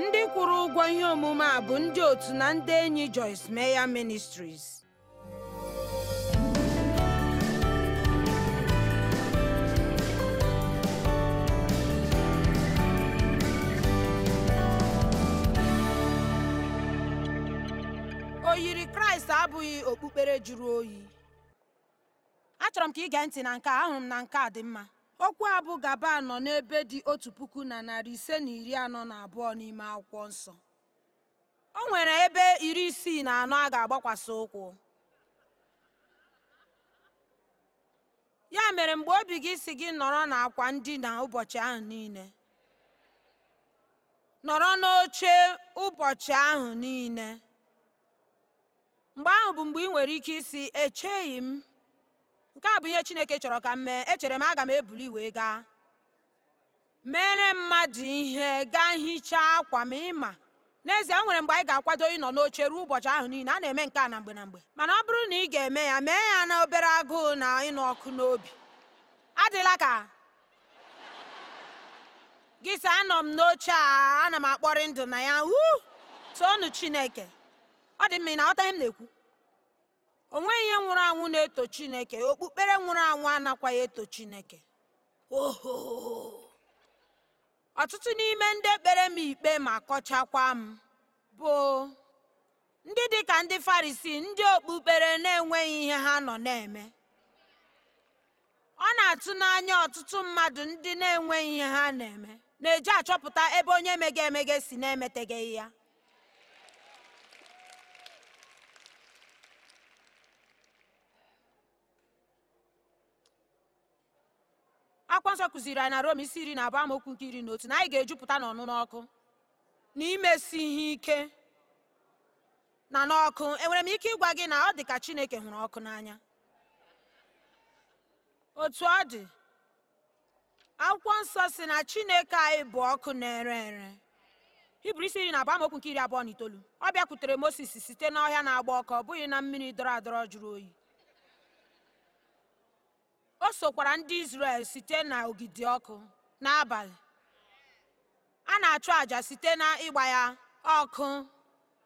ndị kwụrụ ụgwọ ihe omume a bụ ndị otu na ndị enyi Joyce Meyer Ministries oyiri kraịst abụghị okpukpere juru oyi achọrọ m ka ị gee ntị na nke a ahụrụ m na nke a dị mma okwu a bụ gaba nọ n'ebe dị otu puku na narị ise na iri anọ na abụọ n'ime akwụkwọ nsọ o nwere ebe iri isii na anọ a ga agbakwasa ụkwụ ya mere mgbe obi gị si gị nọrọ n'akwa ndina ụbọchị ahụ niile nọrọ n'oche ụbọchị ahụ niile mgbe ahụ bụ mgbe ị nwere ike isi echeghị m nke a bụ ihe chineke chọrọ ka m mee echere m aga m ebuli wee gaa mere mmadụ ihe gaa hichaa akwa ma ịma n'ezie nwere mgbe anyị ga-akwado ịnọ n'oche ruo ụbọchị ahụ niile a na-eme nke a na mgbe na mgbe mana ọ bụrụ na ị ga-eme ya mee ya na obere agụụ na ịnụ ọkụ n'obi adịla ka gị sị anọ m n'oche a ana m akpọrị ndụ na ya wu toonu chineke ọ dị mma ị na-aghọta ihe m na-ekwu onweghi ihe nwụrụ anwụ na-eto chineke okpukpere nwụrụ anwụ anakwaghị eto chineke ọtụtụ n'ime ndị ekpere m ikpe ma kọchakwa m bụ ndị dị ka ndị farisi ndị okpukpere na-enweghị ihe ha nọ na-eme ọ na-atụ n'anya ọtụtụ mmadụ ndị na-enweghị ihe ha na-eme na-eji achọpụta ebe onye mege si na-emeteghị ya akwa nsọ kụziri anyị na rom isi iri na abụ amaokwu nke iri n'otu otu na anyị ga-ejupụta na ọnụnụ ọkụ na imesi ihe ike na n'ọkụ enwere m ike ịgwa gị na ọ dị ka chineke hụrụ ọkụ n'anya otu ọ dị akwụkwọ nsọ si na chineke anyị bụ ọkụ na-ere ere hibru isi iri na abụ amaokwu nke iri abụọ na itoolu ọ bịakwutere mosis site n'ọhịa na-agba ọkụ ọ bụghị na mmiri dọrọ adọrọ jụrụ oyi o sokwara ndị Izrel site ogidi ọkụ n'abalị a na-achụ àjà site n'ịgba ya ọkụ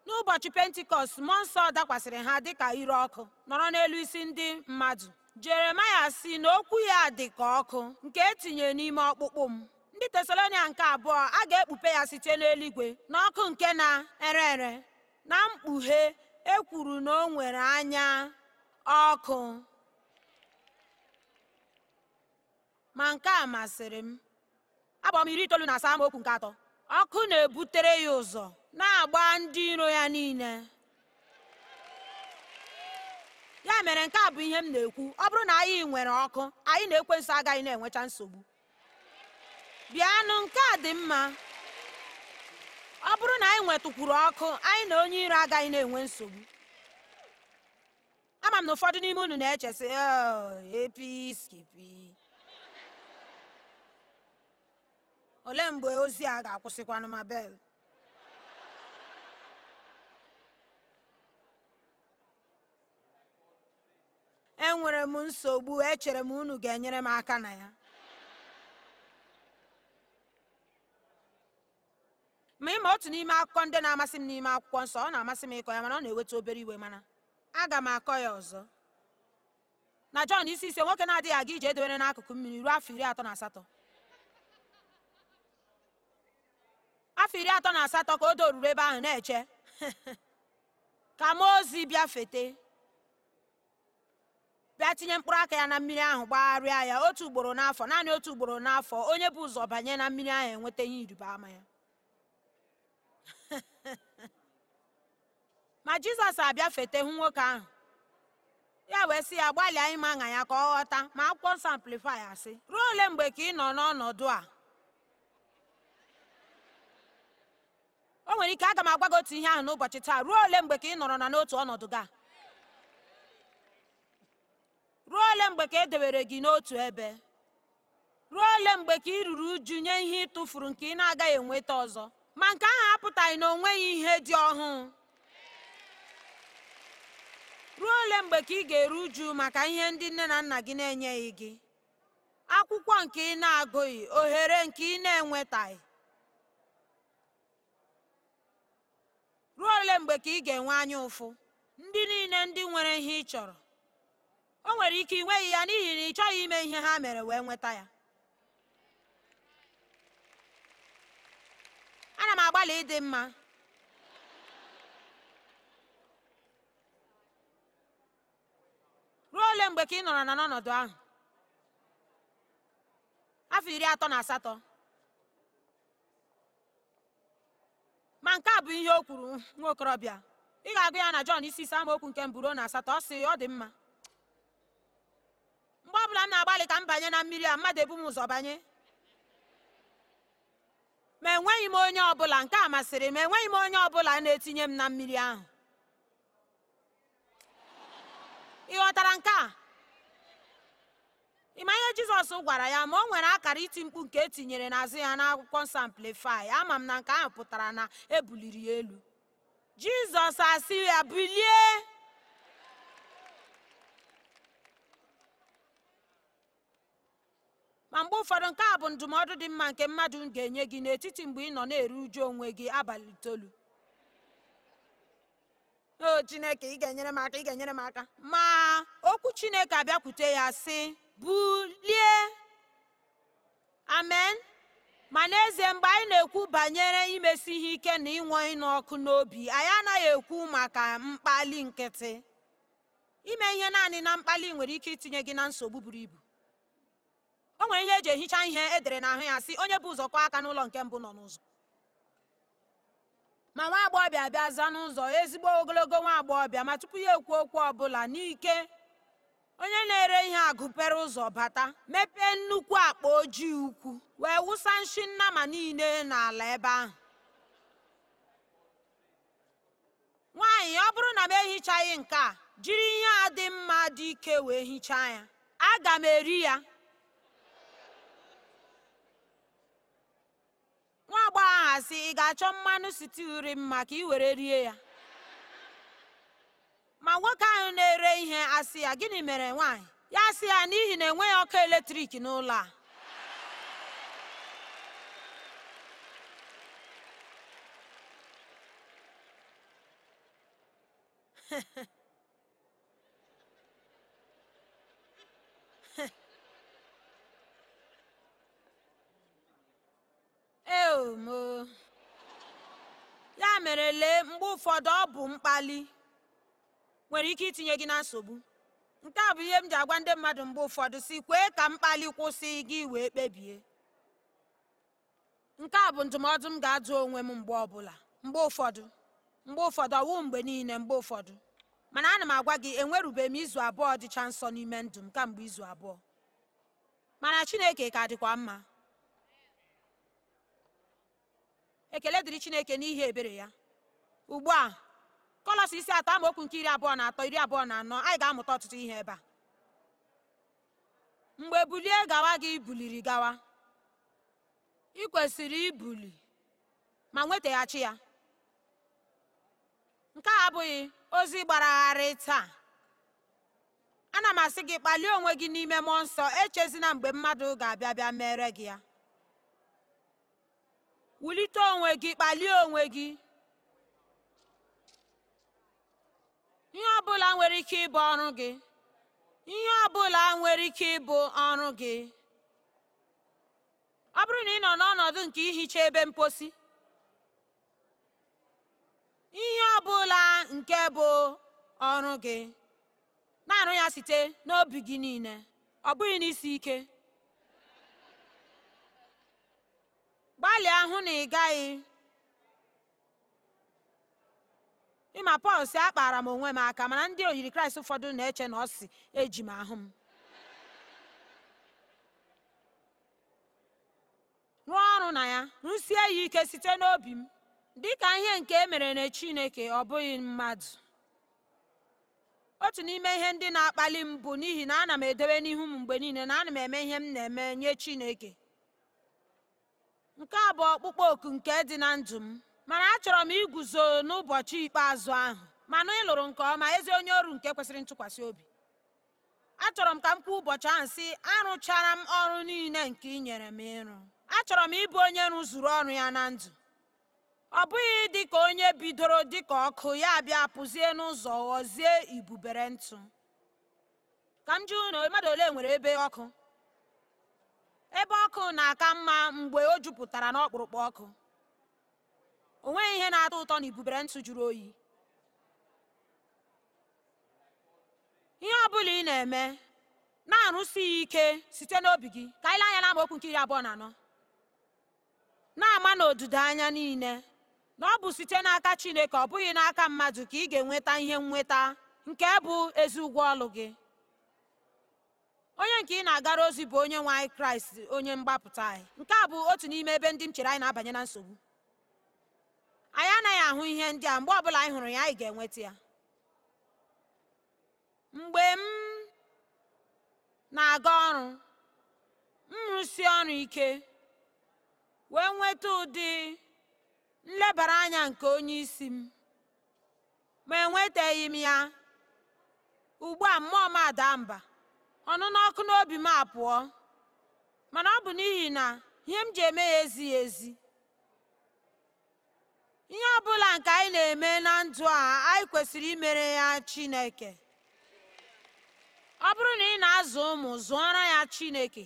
n'ụbọchị pentikọst mmụọ nsọ dakwasịrị ha dịka ire ọkụ nọrọ n'elu isi ndị mmadụ jeremaya si na okwu ya dị ka ọkụ nke etinye n'ime ọkpụkpụ m ndị tesalonia nke abụọ a ga-ekpupe ya site n'eluigwe na ọkụ nke na-ere ere na mkpughe ekwuru na o nwere anya ọkụ ma nke a masịrị m agbara m iri itoolu na asaa amaokwu nke atọ ọkụ na-ebutere ya ụzọ na-agba ndị iro ya niile ya mere nke a bụ ihe m na-ekwu ọ bụrụ na anyị nwere ọkụ anyị na-ekwe nso agaghị na-enwecha nsogbu bịanụ nke a dị mma ọ bụrụ na anyị nwetụkwuru ọkụ anyị na onye iro agaghị na-enwe nsogbu ama m na ụfọdụ n'ime unu na-echesị oh, apskp olee mgbe ozi a ga-akwụsịkwanụ ma bel enwere m nsogbu echere m unu ga-enyere m aka na ya ma ịma otu n'ime akụkọ ndị na-amasị m n'ime akwụkwọ nsọ ọ na-amasị m ịkọ ya mana ọ na-eweta obere iwe mana aga m akọ ya ọzọ na Jọn isi ise nwoke na-adịghị aga ije edobere n'akụkụ mmiri ruo afọ iri atọ na asatọ afọ iri atọ na asatọ ka o doruru ebe ahụ na-eche ka mmụọ ozi bịa fete bịa tinye mkpụrụ aka ya na mmiri ahụ gbagharịa ya otu ugboro n'afọ naanị otu ugboro n'afọ onye bụ ụzọ banye na mmiri ahụ enweta ihe ịrịba ama ya ma jizọs abịa fete hụ nwoke ahụ ya wee sị ya gbalịa ịma anya ya ka ọ ghọta ma akwụkwọ nsọ amplifai asị ruo ole mgbe ka ị nọ n'ọnọdụ a o nwere ike aga m agwa gị otu ihe ahụ n'ụbọchị taa ruo ole mgbe ka ị nọrọ na n'otu ọnọdụ gị ruo ole mgbe ka e dewere gị n'otu ebe ruo ole mgbe ka ị ruru uju nye ihe ị nke ị na-agaghị enweta ọzọ ma nke ahụ apụtaghị na onweghị ihe dị ọhụụ ruo ole mgbe ka ị ga-eru uju maka ihe ndị nne na nna gị na-enyeghị gị akwụkwọ nke ị na-agụghị ohere nke ị na-enwetaghị ruo ole mgbe ka ị ga-enwe anya ụfụ ndị niile ndị nwere ihe ị chọrọ o nwere ike ịnweghị ya n'ihi na ị chọghị ime ihe ha mere wee nweta ya ana m agbalị ịdị mma ruo ole mgbe ka ị nọrọ na n'ọnọdụ ahụ afọ iri atọ na asatọ ma nke a bụ ihe o kwuru nwa okorobịa ị ga-agụ ya na Jọn isi ama okwu nke mbụ na asatọ ọ sị ọ dị mma mgbe ọ bụla m na-agbalị ka m banye na mmiri a mmadụ ebu m ụzọ banye ma enweghị m onye ọbụla nke a masịrị m enweghị m onye ọbụla na-etinye m na mmiri ahụ ị ghọtara nke a ịma ihe jizọs gwara ya ma o nwere akara iti mkpu nke etinyere n'azụ ya n'akwụkwọ nsọ amplifai ama m na nke ahụ pụtara na ebuliri ya elu jizọs asị ya bilie ma mgbe ụfọdụ nke a bụ ndụmọdụ dị mma nke mmadụ ga-enye gị n'etiti mgbe ị nọ na-eru uju onwe gị abalị itolu. o chineke ị ga-enyere m aka ị ga-enyere m aka ma okwu chineke abịakwute ya sị bulie amen ma n'ezie mgbe anyị na-ekwu banyere imesi ihe ike na ịnwe ịnụ ọkụ n'obi anyị anaghị ekwu maka mkpali nkịtị ime ihe naanị na mkpali nwere ike itinye gị na nsogbu buru ibu o nwere ihe eji ehicha ihe edere ahụ ya sị onye bụ ụzọ kwa aka n'ụlọ nke mbụ nọ n'ụzọ ma nwa agbọghọbịa bịa za n'ụzọ ezigbo ogologo nwa agbọghọbịa ma tupu ya ekwu okwu ọbụla n'ike onye na-ere ihe agụpere ụzọ bata mepee nnukwu akpa ojii ukwu wee wụsa nshi nnama niile n'ala ebe ahụ nwaanyị ọ bụrụ na m ehichaghị nke a jiri ihe a dị mma dị ike wee hichaa ya aga m eri ya nwa agbọghọ ahụ ị ga-achọ mmanụ siti mma m maka i were rie ya ma nwoke ahụ na-ere ihe asị ya gịnị mere nwaanyị ya asị ya n'ihi na enweghị ọkụ eletrik n'ụlọ a ya mere lee mgbe ụfọdụ ọ bụ mkpali nwere ike itinye gị na nsogbu nke a bụ ihe m ji agwa ndị mmadụ mgbe ụfọdụ si kwee ka mkpali kwụsị gị wee kpebie nke a bụ ndụmọdụ m ga-ajụ onwe m mgbe ọbụla mgbe ụfọdụ mgbe ụfọdụ ọwụ mgbe niile mgbe ụfọdụ mana ana m agwa gị enwerube m izu abụọ dịcha nsọ n'ime ndụ m kamgbe izu abụọ mana chineke ka dịkwa mma ekele dịrị chineke n'ihi ebere ya ugbu a kọlọs isi atọ amaokwu nke iri abụọ na atọ iri abụọ na anọ anyị ga-amụta ọtụtụ ihe ebe a mgbe bulie gawa gị buliri gawa ị kwesịrị ibuli ma nwetaghachi ya nke a abụghị ozi gbaragharị taa ana m asị gị kpalie onwe gị n'ime mmụọ nsọ echezina mgbe mmadụ ga-abịa bịa mere gị ya wulite onwe gị kpalie onwe gị ihe ọbụla nwere ike ọrụ gị ihe ọbụla nwere ike ịbụ ọrụ gị ọ bụrụ na ị nọ n'ọnọdụ nke ihicha ebe mposi ihe ọbụla nke bụ ọrụ gị na-arụ ya site n'obi gị niile ọ bụghị n'isi ike gbalịa hụ na ị gaghị ịma pọl si akpara m onwe m aka mana ndị oyiri kraịst ụfọdụ na-eche na ọ si eji m ahụ m rụọ ọrụ na ya rụsie ya ike site n'obi m dị ka ihe nke e mere na chineke ọ bụghị mmadụ otu n'ime ihe ndị na-akpali m bụ n'ihi na ana m edobe n'ihu m mgbe niile na ana m eme ihe m na-eme nye chineke nke a bụ ọkpụkpọ oku nke dị na ndụ m mana achọrọ m iguzo n'ụbọchị ikpeazụ ahụ mana ị lụrụ nke ọma ezi onye ọrụ nke kwesịrị ntụkwasị obi achọrọ m ka m kwuo ụbọchị ahụ sị arụchara m ọrụ niile nke ị nyere m ịrụ achọrọ m ịbụ onye rụzuru ọrụ ya na ndụ ọ bụghị dị ka onye bidoro dị ka ọkụ ya bịa pụzie n'ụzọ ghọzie ibubere ntụ ka m jụ na mmadụ ole nwere ebe ọkụ ebe ọkụ na-aka mma mgbe o jupụtara n'ọkpụrụkpụ ọkụ o nweghị ihe na-atọ ụtọ na ibubere ntụ jụrụ oyi ihe ọ bụla ị na-eme na-arụsi ya ike site n'obi gị ka anyị lee anya n'amaokwu nke iri abụọ na anọ na-ama n'odido anya niile na ọ bụ site n'aka Chineke ọ bụghị n'aka mmadụ ka ị ga-enweta ihe nnweta nke bụ ezi ụgwọ ọlụ gị onye nke ị na-agara ozi bụ onye nwe anyị Kraịst onye mgbapụta anyị nke a bụ otu n'ime ebe ndị m chere anyị na-abanye na nsogbu anyị anaghị ahụ ihe ndị a mgbe ọbụla anyị hụrụ ya anyị ga-enweta ya mgbe m na-aga ọrụ m rụsi ọrụ ike wee nweta ụdị nlebara anya nke onye isi m ma enwetaghị m ya ugbu a mmụọ m ada mba ọnụnụ ọkụ n'obi m apụọ mana ọ bụ n'ihi na ihe m ji eme ya ezighị ezi ihe ọ bụla nke anyị na-eme na ndụ a anyị kwesịrị imere ya Chineke ọ bụrụ na ị na-azụ ụmụ zụọrọ ya Chineke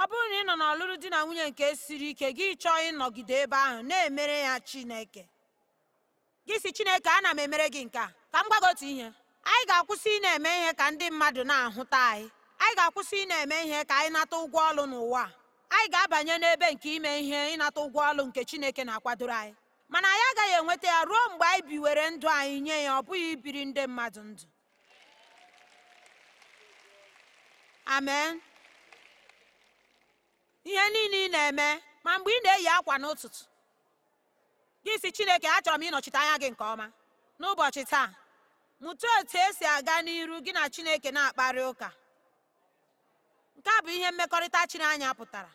ọ bụrụ na ị nọ n'ọlụlụ di na nwunye nke siri ike gị chọọ ịnọgide ebe ahụ na-emere ya Chineke gị si Chineke ana m emere gị nke a ka m gwa ihe anyị ga-akwụsị ị na-eme ihe ka ndị mmadụ na-ahụta anyị anyị ga-akwụsị ị na-eme ihe ka anyị nata ụgwọ ọlụ n'ụwa anyị ga-abanye n'ebe nke ime ihe ịnata ụgwọ ọlụ nke Chineke na-akwadoro anyị mana anyị agaghị enweta ya ruo mgbe anyị biwere ndụ anyị nye ya ọ bụghị ibiri ndị mmadụ ndụ amen ihe niile ị na-eme ma mgbe ị na-eyi akwa n'ụtụtụ gị si chineke achọrọ m ịnọchite anya gị nke ọma n'ụbọchị taa mụta otu esi aga n'iru gị na chineke na-akparị ụka nke a bụ ihe mmekọrịta chiri anya pụtara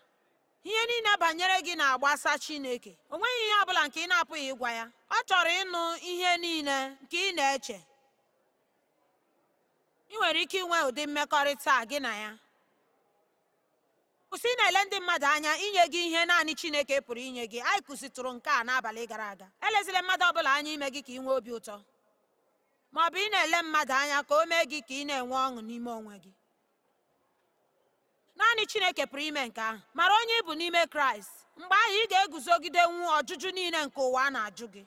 ihe niile banyere gị na-agbasa chineke o nweghị ihe ọ bụla nke ị na-apụghị ịgwa ya ọ chọrọ ịnụ ihe niile nke ị na-eche ị nwere ike inwe ụdị mmekọrịta gị na ya kwụsị ị na-ele ndị mmadụ anya inye gị ihe naanị chineke pụrụ inye gị anyị kụzitụrụ nke a n'abalị gara aga elezila mmadụ ọ bụla anya ime gị ka ị nwee obi ụtọ ma ọ bụ ị na-ele mmadụ anya ka o mee gị ka ị na-enwe ọṅụ n'ime onwe gị naanị chineke pụrụ ime nke ahụ mara onye ị bụ n'ime kraịst mgbe ahụ ị ga-eguzogidenwu ọjụjụ niile nke ụwa a na-ajụ gị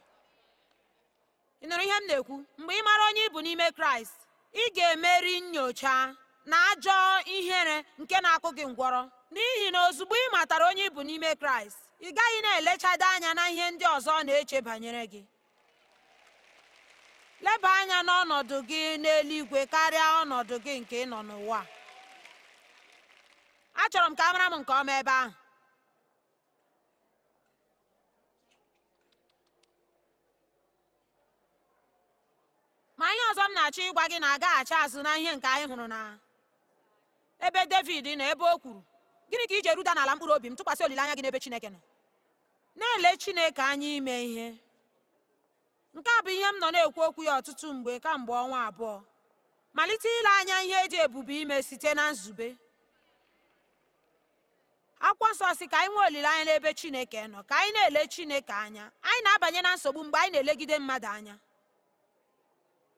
ị nụrụ ihe m na-ekwu mgbe ị mara onye ị bụ n'ime kraịst ị ga-emeri nyocha na ajọ ihere nke na-akụ gị ngwọrọ n'ihi na ozugbo ị matara onye ị bụ n'ime kraịst ị gaghị na-elechado anya na ihe ndị ọzọ na-eche banyere gị leba anya n'ọnọdụ gị n'eluigwe karịa ọnọdụ gị nke ị nọ n'ụwa achọrọ m ka a mara m nke ọma ebe ahụ ma ihe ọzọ m na-achọ ịgwa gị na-agaghachi azụ na ihe nke anyị hụrụ na ebe David na ebe o kwuru gịnị ka iji eruda n'ala mkpụrụ obi m tụkwasị olileanya gị n'ebe Chineke nọ na-ele Chineke anya ime ihe nke a bụ ihe m nọ na-ekwu okwu ya ọtụtụ mgbe kamgbe ọnwa abụọ malite ile anya ihe eji ebube ime site na nzube akwụkwọ nsọ si ka anyị nwee olileanya n'ebe chineke nọ ka anyị na-ele chineke anya anyị na-abanye na nsogbu mgbe anyị na-elegide mmadụ anya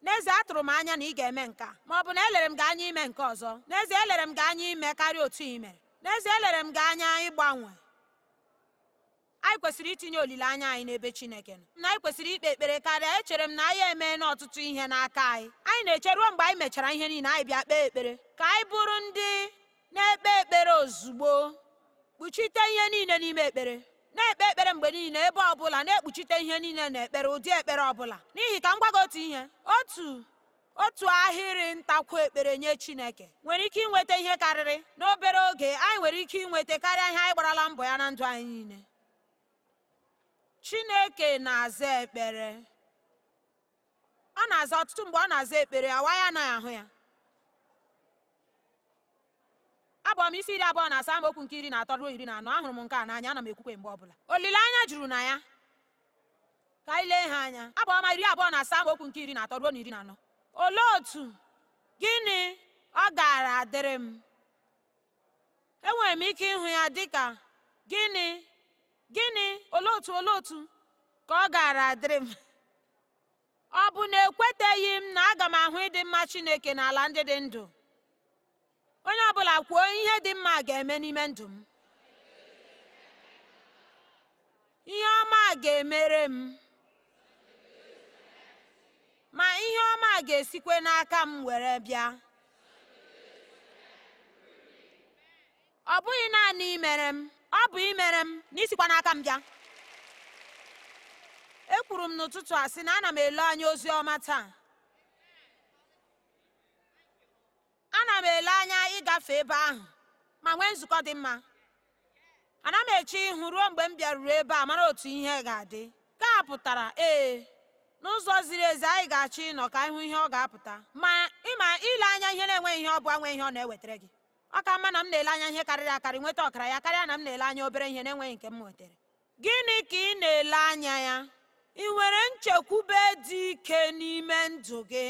n'ezie atụrụ m anya na ị ga-eme nke ma ọ bụ na elere m gị anya ime nke ọzọ n'ezie elere m gị anya ime karịa otu ị mere n'ezie elere m gị anya ịgbanwe anyị kwesịrị itinye olileanya anyị n'ebe chineke nọ na anyị kwesịrị ikpe ekpere karịa echere m na anyị eme n'ọtụtụ ihe n'aka anyị anyị na-eche ruo mgbe anyị mechara ihe niile anyị bịa kpee ekpere ka anyị bụrụ ndị na-ekpe ekpere ozugbo kpuchite ihe niile n'ime ekpere na-ekpe ekpere mgbe niile ebe ọbụla na-ekpuchite ihe niile na ekpere ụdị ekpere ọbụla n'ihi ka m gwago otu ihe otu otu ahịrị ntakwu ekpere nye chineke nwere ike inweta ihe karịrị n'obere oge anyị nwere ike inweta karịa ihe anyị gbarala mbọ ya na ndụ anyị niile chineke na-aza ekpere ọ na-aza ọtụtụ mgbe ọ na-aza ekpere awa ya anaghị ahụ ya abụ m isi iri abụọ na asaa okwu nke iri na atọ ruo iri na anọ ahụrụ m nke a n'anya ana m ekwukwe mgbe ọbụla olileanya juru na ya ka anyị lee ha anya abụ ọma iri abụọ na asaa okwu nke iri na atọ ruo na iri na anọ olee otu gịnị ọ gaara adịrị m enwere m ike ịhụ ya dịka gịnị gịnị olee otu olee otu ka ọ gaara adịrị m ọ bụ na ekweteghị m na aga m ahụ ịdị mma chineke n'ala ndị dị ndụ onye ọ bụla, kwuo ihe dị mma ga-eme n'ime ndụ m ihe ọma ga-emere m ma ihe ọma ga-esikwe n'aka m were bịa ọ bụghị naanị imere m ọ bụ imere m na isikwa n'aka m bịa E kwuru m n'ụtụtụ a sị na ana m ele anya ozi ọma taa ana m ele anya ịgafe ebe ahụ ma nwee nzukọ dị mma ana m eche ihu ruo mgbe m bịaruru ebe a mara otu ihe ga-adị ka a pụtara ee n'ụzọ ziri ezi anyị ga-achọ ịnọ ka ịhụ ihe ọ ga-apụta ma ịma ile anya ihe na-enweghị ihe ọ bụ nwe ihe ọ na-ewetara gị ọ ka mma na m na-ele anya ihe karịrị akarị nweta ọkara ya karịa na m na-ele anya obere ihe na-enweghị nke m nwetara gịnị ka ị na-ele anya ya ị nwere nchekwube dị ike n'ime ndụ gị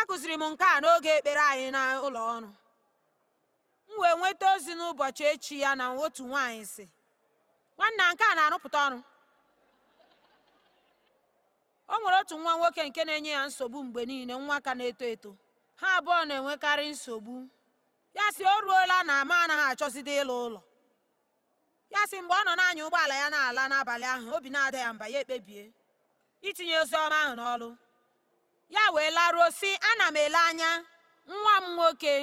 akụziri m nke a n'oge ekpere anyị n'ụlọ ọrụ m wee nweta ozi n'ụbọchị echi ya na otu nwaanyị si nwanne nke a na-arụpụta ọrụ o nwere otu nwa nwoke nke na-enye ya nsogbu mgbe niile nwa ka na-eto eto ha abụọ na-enwekarị nsogbu ya si o ruola na ma anaghị achọzide ịlụ ụlọ ya si mgbe ọ nọ na-anya ụgbọala ya na-ala n'abalị ahụ obi na-ada ya mba ya ekpebie itinye ozi ọma ahụ n'ọrụ ya wee laruo si ana m ele anya nwa m nwoke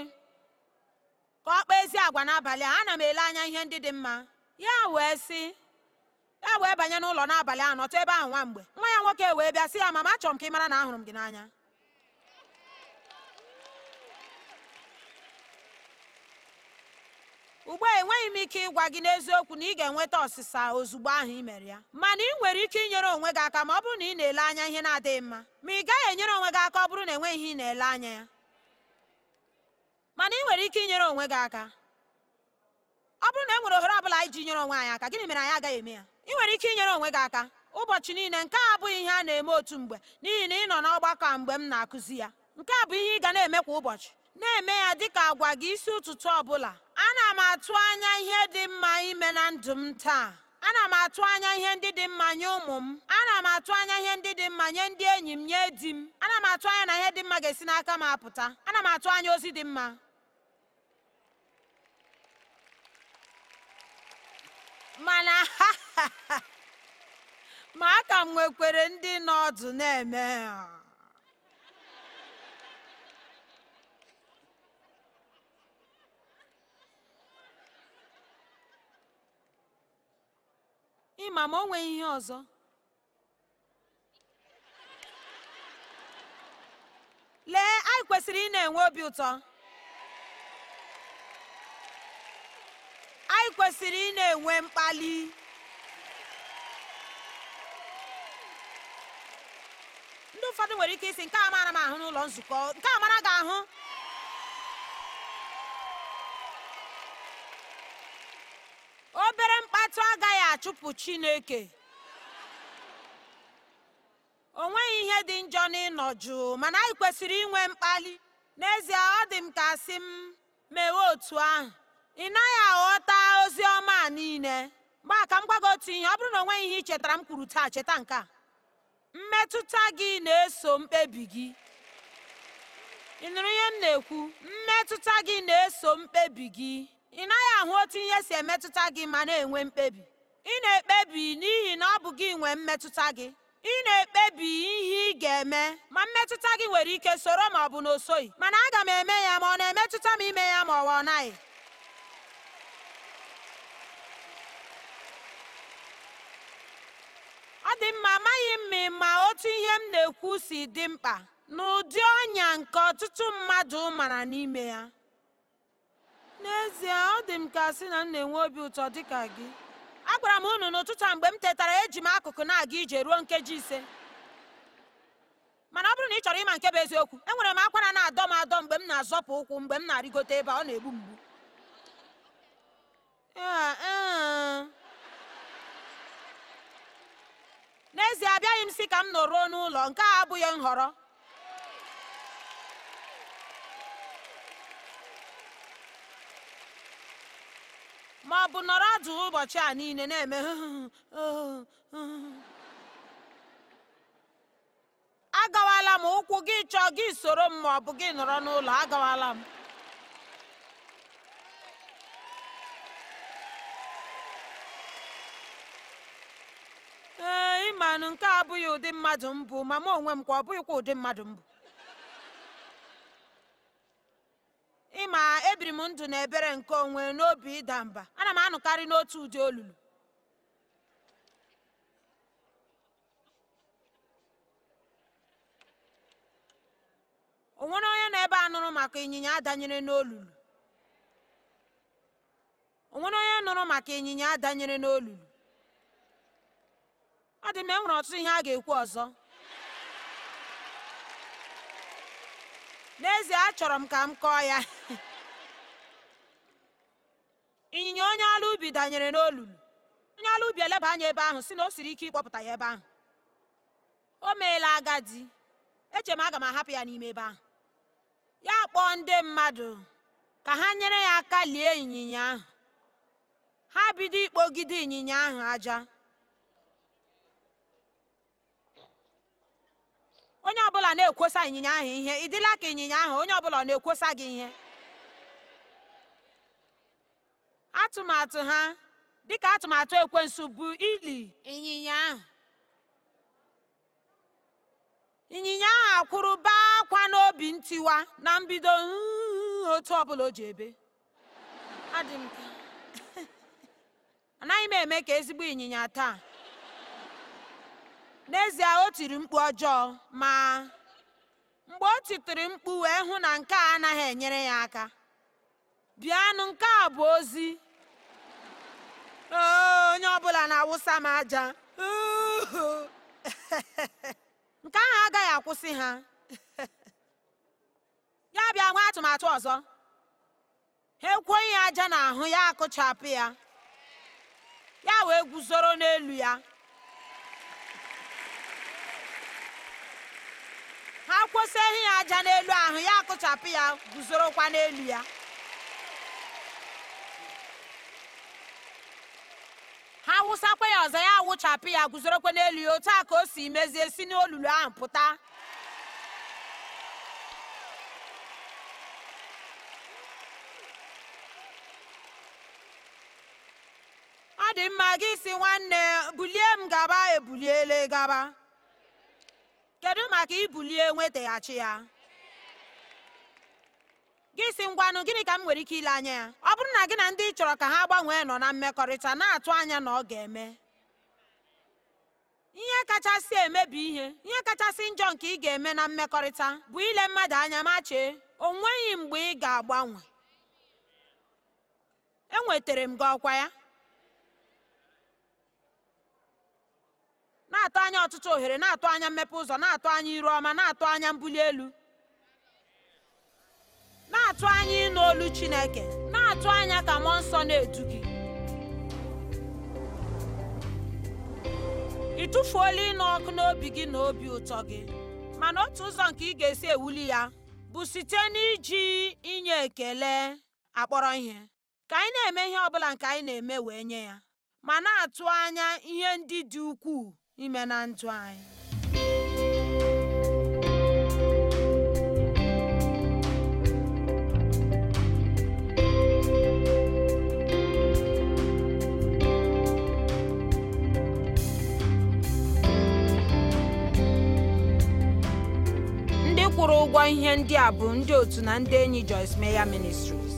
ka ọ kpaa ezi agwa n'abalị a ana m ele anya ihe ndị dị mma ya wee si ya wee banye n'ụlọ n'abalị a nọtụ ebe ahụ nwa mgbe nwa ya nwoke wee bịa sị ya mama achọrọ m ka ị mara na ahụrụ m gị n'anya ugbu a enweghị m ike ịgwa gị n'eziokwu na ị ga-enweta ọsịsa ozugbo ahụ ị mere ya mana ị nwere ike inyere onwe gị aka ma ọ bụrụ na ị na-ele anya ihe na-adịghị mma ma ị gaghị enyere onwe gị aka ọ bụrụ na enweghị ihe ị na-ele anya ya mana ị nwere ike inyere onwe gị aka ọ bụrụ na e nwere ohere ọ bụla ji nyere onwe anyị aka gịnị mere anyị agaghị eme ya ị nwere ike inyere onwe gị aka ụbọchị niile nke a abụghị ihe a na-eme otu mgbe n'ihi na ị nọ n'ọgbakọ a mgbe m na-akụzi ya nke a bụ ihe ị ga na-eme kwa ụbọchị na-eme ya dị ka agwa gị isi ụtụtụ ọ bụla ana m atụ anya ihe dị mma ime na ndụ m taa ana m atụ anya ihe ndị dị mma nye ụmụ m ana m atụ anya ihe ndị dị mma nye ndị enyi m nye di m ana m atụ anya na ihe dị mma ga-esi n'aka m apụta ana m atụ anya ozi dị mma mana ma aka m nwekwere ndị nọ ọdụ na-eme ịma ma o nweghị ihe ọzọ lee anyị kwesịrị ị na-enwe obi ụtọ anyị kwesịrị ị na-enwe mkpali ndị ụfọdụ nwere ike isi nke a mara m ahụ n'ụlọ nzukọ nke a mara gị ahụ obere mkpatụ agaghị achụpụ chineke o nweghị ihe dị njọ n'ịnọ jụụ mana anyị kwesịrị inwe mkpali n'ezie ọ dị m ka sị m mewe otu ahụ ị naghị aghọta ozi ọma a niile mgbaa ka m gwa otu ihe ọ bụrụ na o nweghị ihe ị chetara m kwuru taa cheta nke a mmetụta gị na-eso mkpebi gị ị nụrụ ihe m na-ekwu mmetụta gị na-eso mkpebi gị ị naghị ahụ otu ihe si emetụta gị ma na-enwe mkpebi ị na-ekpebi n'ihi na ọ bụ gị nwee mmetụta gị ị na-ekpebi ihe ị ga-eme ma mmetụta gị nwere ike soro ma ọ bụ na o soghị mana aga m eme ya ma ọ na-emetụta m ime ya ma ọwa ọ naghị ọ dị mma amaghị m ma otu ihe m na-ekwu si dị mkpa n'ụdị ọnya nke ọtụtụ mmadụ mara n'ime ya n'ezie ọ dị m ka sị na m na-enwe obi ụtọ dịka gị agwara m unu n'ụtụtụ a mgbe m tetara eji m akụkụ na-aga ije ruo nkeji ise mana ọ bụrụ na ị chọrọ ịma nke bụ eziokwu enwere m akwara na-adọ m adọ mgbe m na-azọpụ ụkwụ mgbe m na-arịgote ebe ọ na-egbu mgbu e. n'ezie abịaghị m si ka m nọruo n'ụlọ nke a abụghị nhọrọ ma ọ bụ nọrọ adụ ụbọchị a niile na-eme agawala m ụkwụ gị chọọ gị soro m ma ọ bụ gị nọrọ n'ụlọ agawala m ee ịmanụ nke abụghị ụdị mmadụ mbụ ma m onwe m kwa ọ bụghịkwa ụdị mmadụ mbụ ịma ebiri m ndụ na ebere nke onwe n'obi ịda mba ana m anụkarị n'otu ụdị olulu o nwere onye nọ ebe a nụrụ maka ịnyịnya adanyere n'olulu o ọ dị m enwere ọtụtụ ihe a ga-ekwu ọzọ n'ezie achọrọ m ka m kọọ ya ịnyịnya onye ala ubi danyere n'olulu onye ala ubi eleba anya ebe ahụ si na o siri ike ịkpọpụta ya ebe ahụ o meela agadi eche m aga m ahapụ ya n'ime ebe ahụ ya kpọọ ndị mmadụ ka ha nyere ya aka lie ịnyịnya ahụ ha bido ikpogide ịnyịnya ahụ aja onye ọbụla na-ekwosa ịnyịnya ahụ ihe ị dịla ka ịnyịnya ahụ onye ọbụla na-ekwosa gị ihe atụmatụ ha dịka atụmatụ ekwensu bụ ili ịnyịnya ahụ ịnyịnya ahụ akwụrụ baa akwa n'obi ntiwa na mbido otu ọbụla o ji ebe anaghị m eme ka ezigbo ịnyịnya taa n'ezie o tiri mkpu ọjọọ ma mgbe o titiri mkpu wee hụ na nke a anaghị enyere ya aka bịanụ nke a bụ ozi onye ọbụla na-awụsa m aja nke ahụ agaghị akwụsị ha ya bịa nwee atụmatụ ọzọ ha ekwughị ya aja n'ahụ ya akụchapụ ya ya wee guzoro n'elu ya ha kwụsị ehi ya aja n'elu ahụ ya akụchapụ ya guzorokwa n'elu ya ha wụsakwa ya ọzọ ya awụchapụ ya guzorokwa n'elu ya otu a ka o si mezie si n'olulu ahụ pụta ọ dị mma gị si nwanne bulie m gaba ebuliele gaba maka ibulie nwetaghachi ya gị si ngwanụ gịnị ka m nwere ike ile anya ya ọ bụrụ na gị na ndị ị chọrọ ka ha gbanwee nọ na mmekọrịta na-atụ anya na ọ ga-eme ihe kachasị emebi ihe ihe kachasị njọ nke ị ga-eme na mmekọrịta bụ ile mmadụ anya ma chee o nweghị mgbe ị ga-agbanwe enwetara m gị ọkwa ya na-atụ anya ọtụtụ ohere na-atụ anya mmepe ụzọ na-atụ anya iru ọma na-atụ anya mbuli elu na-atụ anya ịnụ olu Chineke na-atụ anya ka mmụọ nsọ na-edu gị ị tụfuola ịnụ ọkụ n'obi gị na obi ụtọ gị mana otu ụzọ nke ị ga-esi ewuli ya bụ site n'iji inye ekele akpọrọ ihe ka anyị na-eme ihe ọ bụla nke anyị na-eme wee nye ya ma na-atụ anya ihe ndị dị ukwuu ime na ndụ anyị ndị kwụrụ ụgwọ ihe ndị a bụ ndị otu na ndị enyi Joyce Meyer Ministries